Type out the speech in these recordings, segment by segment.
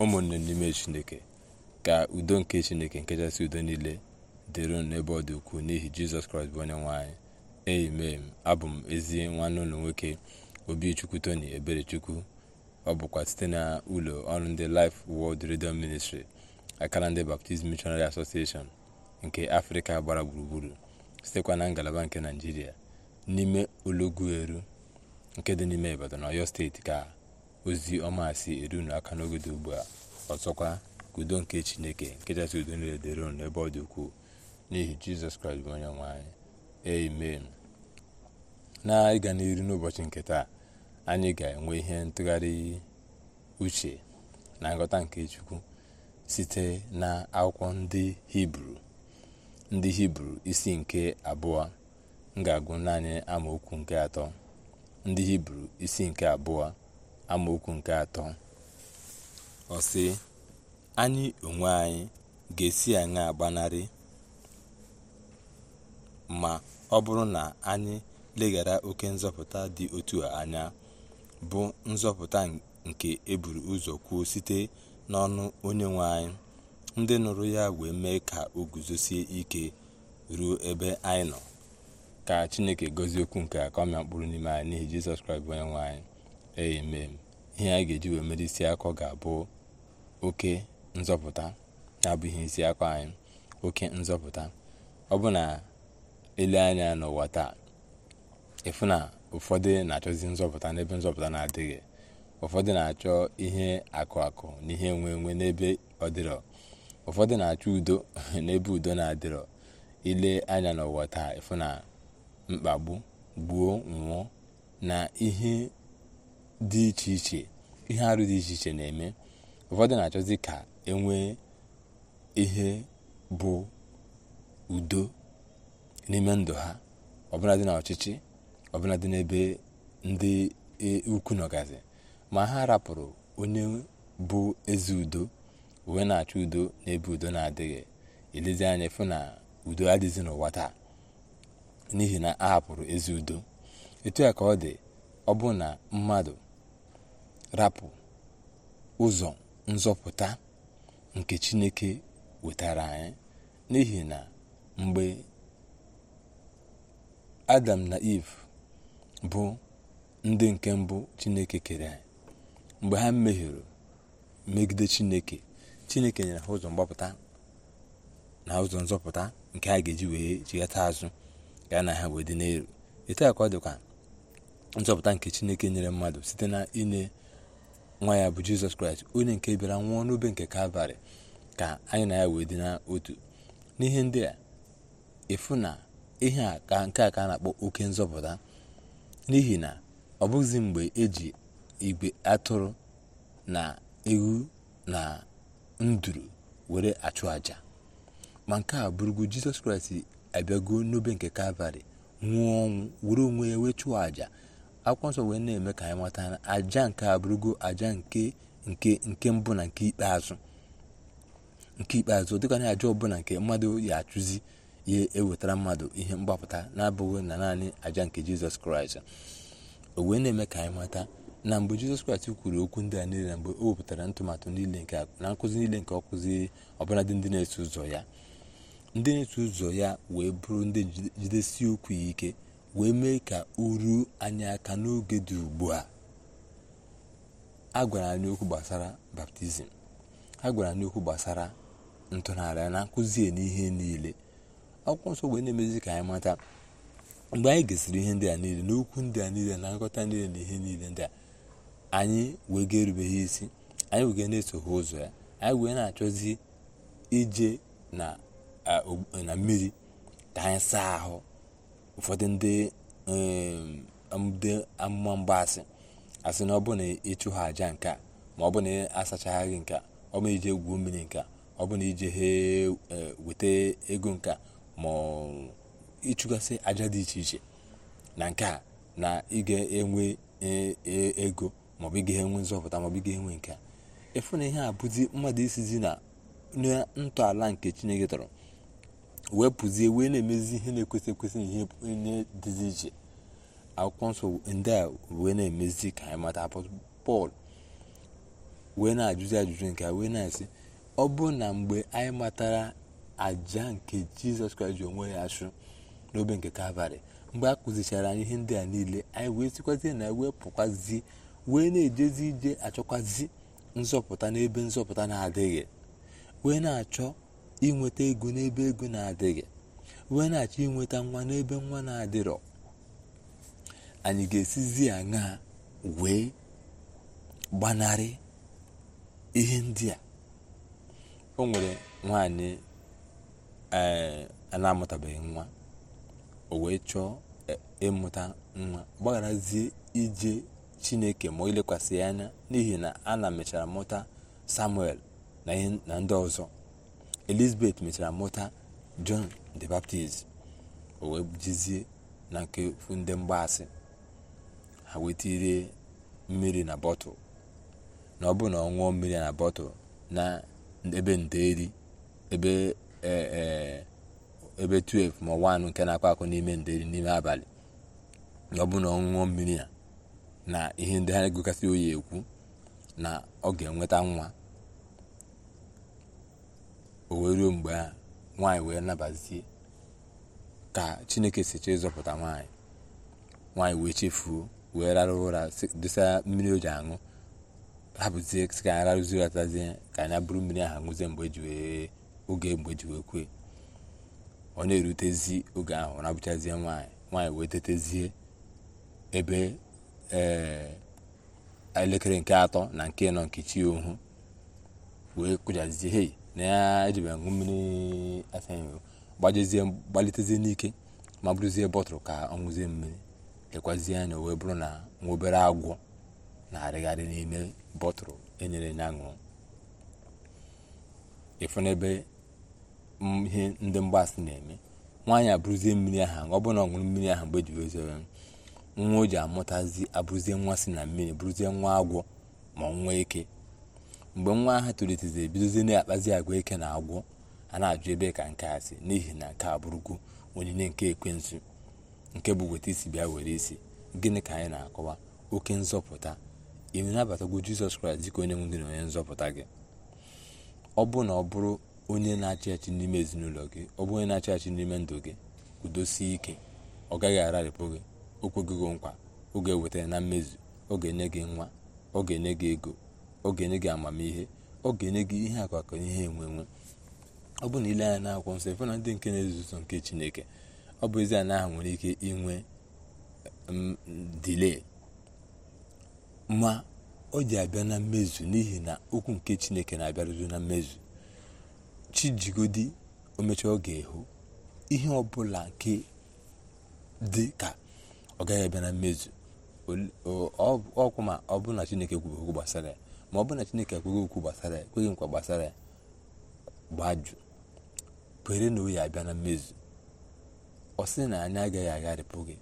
ụmụnne n'ime chineke ka udo nke chineke nkechasị udo niile dịrị n'ebe ọ dị ukwuu n'ihi jizọs kraịst bụ onye nwe anyị amen abụ m ezi nwanne ụlọ nwoke obichukwu tony eberechukwu ọ bụkwa site na ụlọ ọrụ ndị Life World Radio Ministry akara ndị baptizim Missionary Association nke afrịka gbara gburugburu sitekwa na ngalaba nke naijiria n'ime olọgwueru nke dị n'ime ibadan ọyọ steeti ka ozi ọma si erunu aka n'oge ugbu a ọzọkwa udo nke chineke nke kachasị udo niile dịrị unu n'ebe ọ dị ukwuu n'ihi jizọs kraịst bụ onye nwe anyị amen na ịga n'iru n'ụbọchị nke taa anyị ga-enwe ihe ntụgharị uche na nghọta nke chukwu site na akwụkwọ ndị hibru ndị hibru isi nke abụọ m ga-agụ naanị amaokwu nke atọ ndị hibru isi nke abụọ amaokwu nke atọ ọ si anyị onwe anyị ga-esi aṅa agbanarị ma ọ bụrụ na anyị leghara oke nzọpụta dị otu a anya bụ nzọpụta nke eburu ụzọ kwuo site n'ọnụ onye nwe anyị ndị nụrụ ya wee mee ka o guzosie ike ruo ebe anyị nọ ka chineke gọzie okwu nke a ka mkpụrụ n'ime anyị n'ihi jizọs kraịst nwe anyị amen ihe a ga-eji wee mere isi akọ ga-abụ oke nzọpụta abụghị isi akọ anyị oke nzọpụta ọ bụ na ele anya n'ụwa taa ịfụ na ụfọdụ na-achọzi nzọpụta n'ebe nzọpụta na-adịghị ụfọdụ na-achọ ihe akụ akụ na ihe enwe enwe n'ebe ọ dịrọ ụfọdụ na-achọ udo n'ebe udo na-adịrọ ile anya n'ụwa taa ịfụ na mkpagbu gbuo nwụọ na ihe dị iche iche ihe arụ dị iche iche na-eme ụfọdụ na-achọzi ka enwee ihe bụ udo n'ime ndụ ha ọbụladị na ọchịchị ọbụladị n'ebe ndị e, ukwu nọgazi ma ha rapụrụ onye bụ ezi udo wee na-achọ udo n'ebe udo na-adịghị elezi anya fụ na udo adịzi n'ụwa taa n'ihi na a hapụrụ ezi udo etu ya ka ọ dị ọ bụ na mmadụ rapụ ụzọ nzọpụta nke chineke wetara anyị n'ihi na mgbe adam na eve bụ ndị nke mbụ chineke kere anyị mgbe ha mehiere megide chineke chineke nyere ha ụzọ mgbapụta na ụzọ nzọpụta nke a ga-eji wee chighata azụ ya na ha wee n'elu etu ka ọ dịkwa nzọpụta nke chineke nyere mmadụ site na inye nwa ya bụ jizọs kraịst onye nke bịara nwụọ n'obe nke kalvarị ka anyị na ya wee dị n'otu n'ihe ndị a ịfụ na ihe a ka nke a ka a na-akpọ oke nzọpụta n'ihi na ọ bụghịzi mgbe eji igwe atụrụ na ewu na nduru were achụ àjà ma nke a bụrụgo jizọs kraịst abịago n'obe nke kalvarị nwụọ ọnwụ were onwe ya wee chụọ àjà akwụkwọ nsọ wee na-eme ka anyị mata na aja nke abụrụgo aja nke nke nke mbụ na nke ikpeazụ nke ikpeazụ dịka na aja ọbụla nke mmadụ ya achụzi ya ewetara mmadụ ihe mgbapụta na-abụghị na naanị aja nke jizọs kraịst o wee na-eme ka anyị mata na mgbe jizọs kraịst kwuru okwu ndị a niile mgbe o wepụtara ntụmatụ niile nke na nkụzi niile nke ọ kụziri ọbụladị ndị na-eso ụzọ ya ndị na-eso ụzọ ya wee bụrụ ndị jidesi okwu ya ike wee mee ka uru anyị aka n'oge dị ugbu a a gwara anyị okwu gbasara baptizim a gwara anyị okwu gbasara ntụnara na nkụzi n'ihe niile akwụkwọ nsọ wee na-emezi ka anyị mata mgbe anyị gesịrị ihe ndị a niile n'okwu ndị a niile na nghọta niile na ihe niile ndị a anyị wee ga-erubeghị isi anyị wee na-esogha ụzọ ya anyị wee na-achọzi ije na mmiri ka anyị saa ahụ ụfọdụ ndị um, amụma mgbaasị asị na ọ bụ na ịchụ ha aja nke a ma ọ bụ na asachaghaghị nke a ọ bụ ije egwu mmiri nke a ọ bụ na ije he eh, weta ego nke a ma ịchụgasị aja dị iche iche na nke a na ịga enwe e, e, ego maọbụ ị enwe nzọpụta maọbụ ịga ga-enwe nke a ịfụ na ihe a bụzi mmadụ isizi na ntọala nke chineke tọrọ wee pụzie wee na-emezi ihe na-ekwesị ekwesị na ihe onye dịzi iche akwụkwọ nsọ ndị a wee na-emezi ka anyị mata pọl wee na-ajụzi ajụjụ nke a wee na-asị ọ bụrụ na mgbe anyị matara aja nke jizọs kraịst ji onwe ya achụ n'obe nke kalvarị mgbe a kụzichara anyị ihe ndị a niile anyị wee sikwazie na wee pụkwazie wee na-ejezi ije achọkwazi nzọpụta n'ebe nzọpụta na-adịghị wee na-achọ inweta ego n'ebe ego na-adịghị wee na-achọ inweta nwa n'ebe nwa na-adịrọ anyị ga-esizi aṅa wee gbanarị ihe ndị a o nwere nwaanyị eh, a na-amụtabeghị nwa o wee chọọ eh, ịmụta nwa gbagharazie ije chineke ma ilekwasị ya anya n'ihi na a na mechara mụta samuel na ndị ọzọ elizabeth mechara mụta john the baptist o wee jizie na nke ndị mgbaasị ha wetirie mmiri na bọtụ na ọ bụ na ọ mmiri na bọtụlụ na ebe ndeeri ebe e, e, ebe 12 ma anụ nke na-akọ akọ n'ime ndeeri n'ime abalị na ọ bụ na ọ mmiri mmiri na ihe ndị ha egokasị oyi ekwu na ọ ga-enweta nwa o wee ruo mgbe a nwaanyị wee nabazie ka chineke si chọọ ịzọpụta nwaanyị nwaanyị wee chefuo wee rara ụra dosa mmiri o ji aṅụ hapụzie ka anyị rarụzie atazie ka anya bụrụ mmiri ahụ nwụzie mgbe eji oge mgbe e wee kwee ọ na-erutezi oge ahụ na-abụchazie nwaanyị nwaanyị wee tetezie ebe eh, elekere nke atọ na nke nọ nke ohu wee kụjazie hei na ya ejibe aṅụ mmiri afe gbajezie gbalitezie n'ike ma bụrụzie bọtụlụ ka ọ ṅụzie mmiri lekwazie anya wee bụrụ na nwa obere agwọ na-arịgharị n'ime bọtụlụ enyere ya ṅụrụ ịfụ e n'ebe ihe ndị mgbasị na-eme nwaanyị abụrụzie mmiri aha ọ bụrụ na ọ mmiri ahụ mgbe ejibe nwa o ji amụtazi abụrụzie nwa si na mmiri bụrụzie nwa agwọ ma nwee ike. mgbe nwa ahụ tolitezi ebidozie na-akpazi agwa ike na agwọ a na-ajụ ebe ka nke a si n'ihi na nke a bụrụgo onyinye nke ekwensu nke bụ weta isi bịa were isi gịnị ka anyị na-akọwa oke nzọpụta ị abatagwo jizọs kraịst dịka onye nwe gị na onye nzọpụta gị ọ bụ na ọ bụrụ onye na-achị achị n'ime ezinụlọ gị ọ bụ onye na-achị achị n'ime ndụ gị kwudosie ike ọ gaghị ararịpụ gị o nkwa oge eweta na mmezu ọ ga-enye gị nwa ọ ga-enye gị ego oge ga gị amamihe oge ga-enye gị ihe akụakụ ihe enwe enwe ọ bụ na ile anya na-akwụkwọ nsọ ife na ndị nke na ezuzo nke chineke ọ bụ ezi na ahụ nwere ike inwe mm, dile ma ọ ji abịa na mmezu n'ihi na okwu nke chineke na-abịarụzi na mmezu chijigodi omechaa ọ ga-ehu ihe ọbụla nke dị ka ọ gaghị abịa na mmezu ọkwụ ma ọ bụrụ na chineke kwuru okwu gbasara ya ma ọ bụrụ na chineke ekweghị okwu gbasara ya ekweghị nkwa gbasara ya gbajụ kwere na oyi abịa na mmezu ọ sị na anyị agaghị agharịpụ gị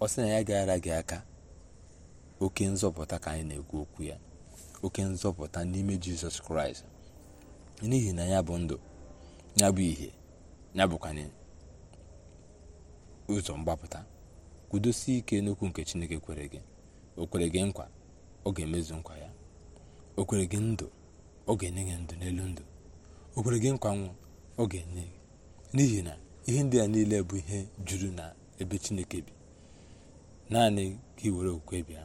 ọ sị na anyị agaghị ara gị aka oke nzọpụta ka anyị na-ekwu okwu ya oke nzọpụta n'ime jizọs kraịst n'ihi na ya bụ ndụ ya bụ ihe ya bụkwanye ụzọ mgbapụta kwudosie ike n'okwu nke chineke kwere gị o kwere gị nkwa ọ ga-emezu nkwa ya o gị ndụ ọ ga-enye gị ndụ n'elu ndụ okwere gị nkwanwụ ọ ga-enye gị n'ihi na ihe ndị a niile bụ ihe juru na ebe chineke bi naanị ka iwere okwukwe bịa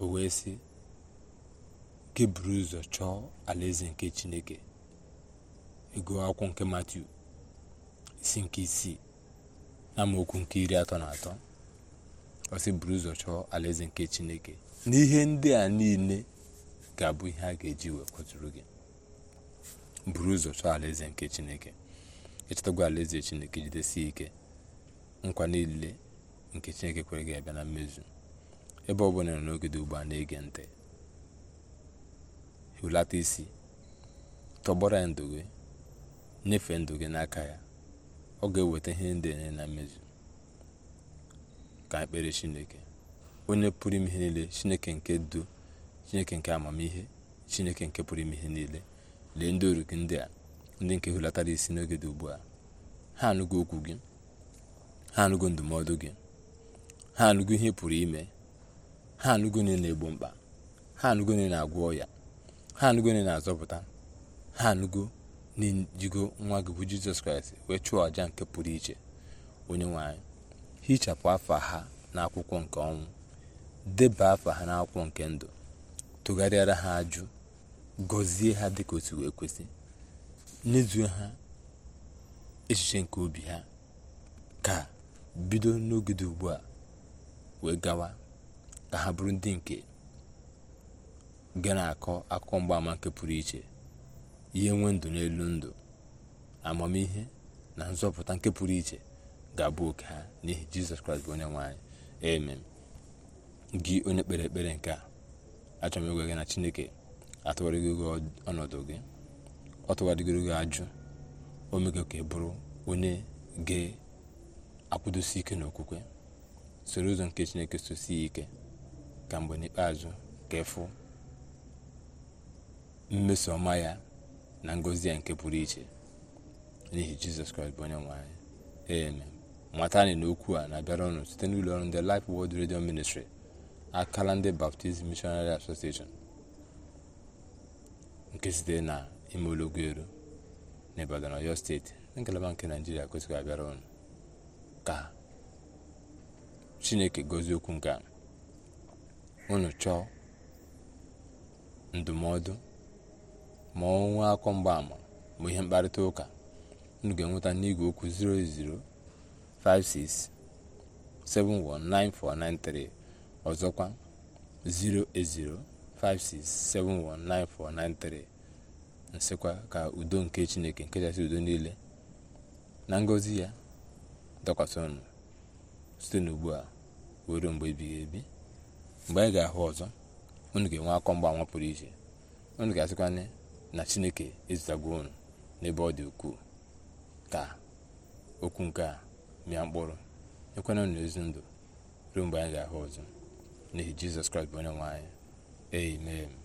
o wee sị gị buru ụzọ chọọ alaeze nke chineke ego akwụkwọ nke matiu isi nke isii amaokwu nke iri atọ na atọ ọsị buru ụzọ chọọ alaeze nke chineke n'ihe ndị a niile ga-abụ ihe a ga-eji wee kwaturu gị buru ụzọ chọọ alaeze nke chineke ịchọtagwa alaeze chineke jidesie ike nkwa niile nke chineke kwere gị abịa na mmezu ebe ọ bụla nọ n'oge dị ugbu a na-ege ntị hulata isi tọgbọrọ ya ndụ gị nyefee ndụ gị n'aka ya ọ ga-eweta ihe ndị enye na mmezu ka ekpere chineke onye pụrụ ime ihe niile chineke nke du chineke nke amamihe chineke nke pụrụ ime ihe niile lee ndị oru gị ndị a ndị nke hulatara isi n'oge dị ugbu a ha anụgo okwu gị ha anụgo ndụmọdụ gị ha anụgo ihe pụrụ ime ha anụgo na na-egbo mkpa ha anụgo na na-agwọ ọya ha anụgo na na-azọpụta ha anụgo na-ejigo nwa gị bụ jizọs kraịst wee chụọ àja nke pụrụ iche onye nwe hichapụ afa ha n'akwụkwọ nke ọnwụ deba afa ha n'akwụkwọ nke ndụ tụgharịara ha ajụ gọzie ha dịka otu wee kwesị nyezuo ha echiche nke obi ha ka bido n'ogide ugbu a wee gawa ka ha bụrụ ndị nke ga na-akọ akụkọ mgbaama nke pụrụ iche ihe nwe ndụ n'elu ndụ amamihe na nzọpụta nke pụrụ iche ga-abụ oke ha n'ihi jizọs kraịst bụ onye nwanyị anyị gị onye kpere ekpere nke a achọrọ m gị na chineke atụgharịgo gị ọnọdụ gị ọ tụgharịgoro gị ajụ o ka bụrụ onye ga-akwụdosi ike n'okwukwe soro ụzọ nke chineke sosi ike ka mgbe n'ikpeazụ ka ịfụ mmeso ọma ya na ngọzi ya nke pụrụ iche n'ihi jizọs kraịst bụ onye nwe anyị ee mata anyị na okwu a na-abịara ọnụ site n'ụlọ ọrụ ndị Life wod Radio Ministry akala ndị baptist missionary association nke site na ime elu na ibadan oyo steeti na ngalaba nke naijiria kwesịrị abịara ụnụ ka chineke gozie okwu nke a chọọ ndụmọdụ ma ọ nwee akọ mgbaama ma ihe mkparịta ụka unu ga-enweta n'igwe okwu 08056719493 ọzọkwa 08056719493 nsịkwa ka udo nke chineke nke kachasị udo niile na ngọzi ya dọkwasị ọnụ site n'ugbu a were mgbe ebighị ebi mgbe anyị ga-ahụ ọzọ unu ga-enwe akọ mgbanwa pụrụ iche unu ga-asịkwanye na chineke ezutagwo unu n'ebe ọ dị ukwuu ka okwu nke a mịa mkpụrụ ekwena na ezi ndụ ruo mgbe anyị ga-ahụ ọzọ n'ihi jizọs kraịst bụ onye nwe anyị amen